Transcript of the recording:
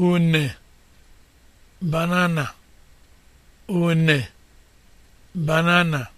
une banana une banana